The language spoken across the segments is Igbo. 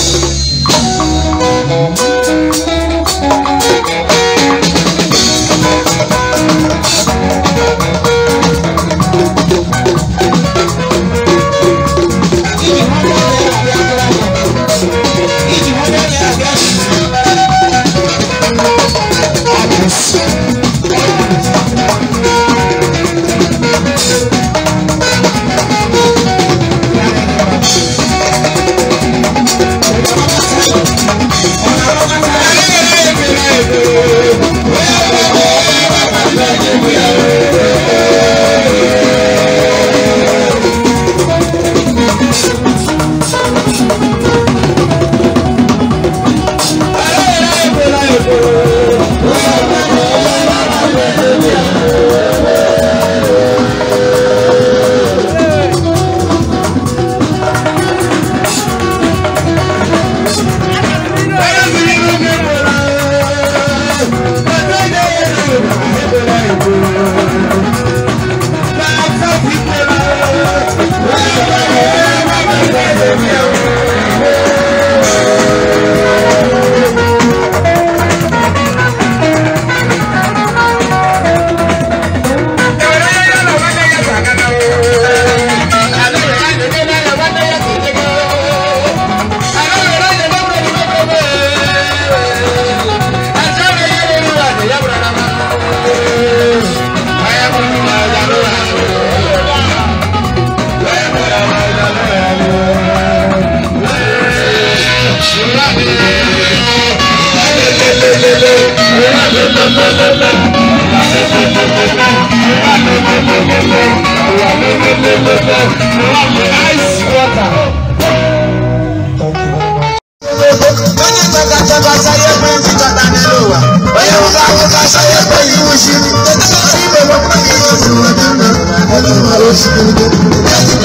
We'll be right back. Ice water. Onye gbata chaba saye pe nti chata nilo wa. Onye wuka wuka saye pe iwu shiri. Tete ka si ibe mo kwa kiri osu wa dana. Onye ma lo si kiri.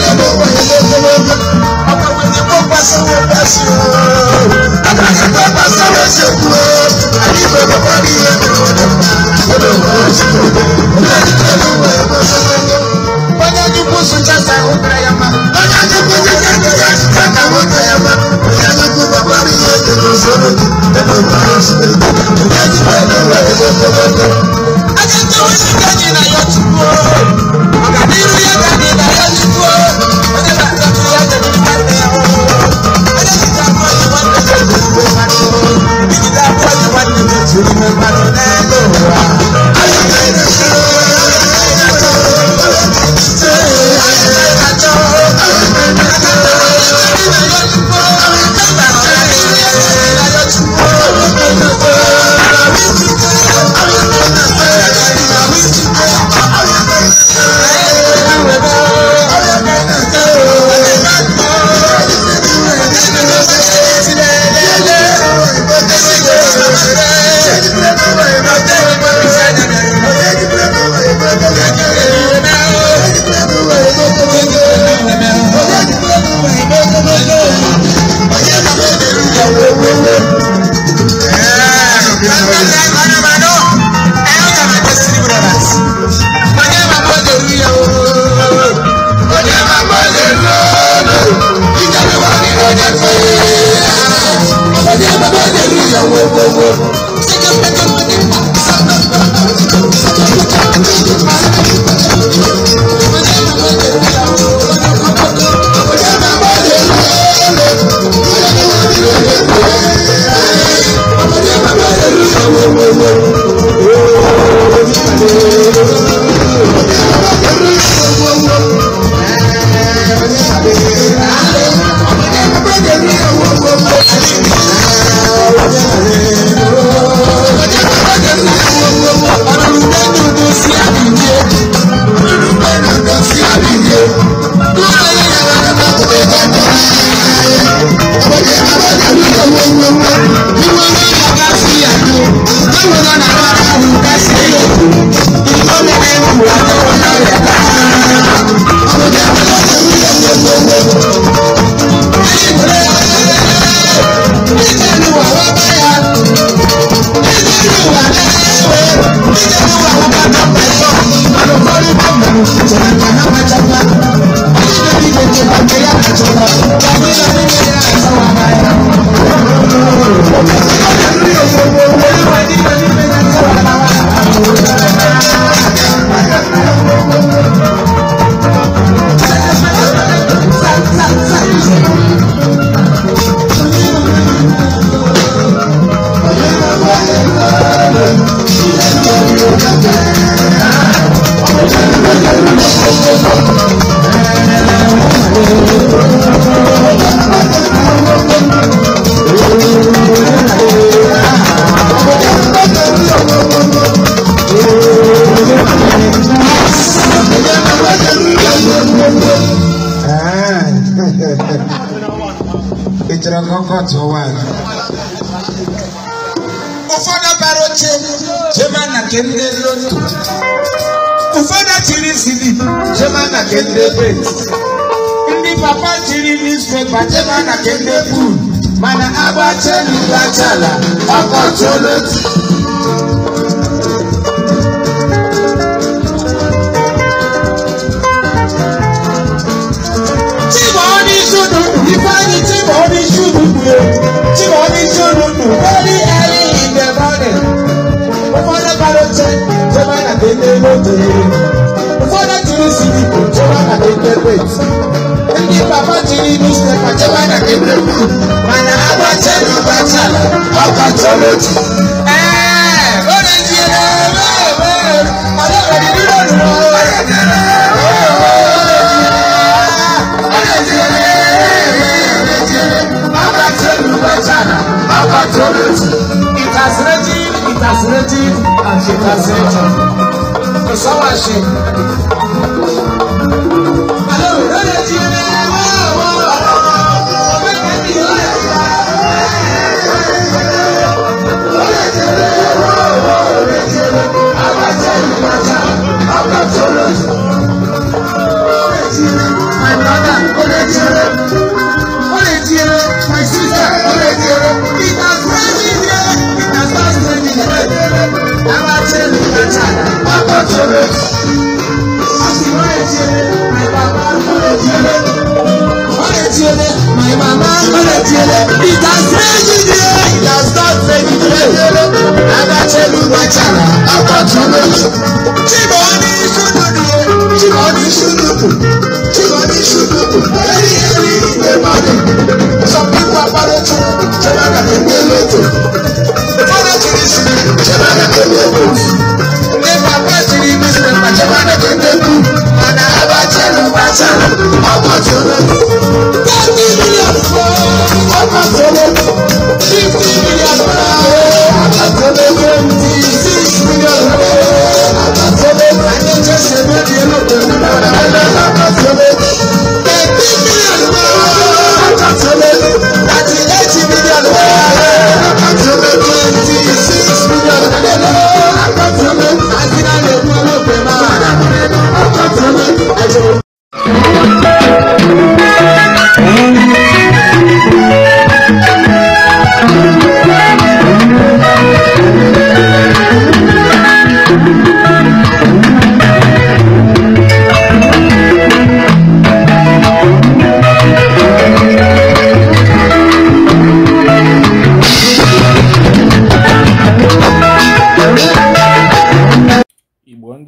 court one. Ụfọdụ bara oche jema na kende ndị lotu. Ụfọdụ chiri CD jema na kende ndị ebe. Ndị papa chiri newspaper jema na nke ndị buru mana agba chelụ lachala ọkọchị olotu. Mana abachala bachala, abachala bachala. us.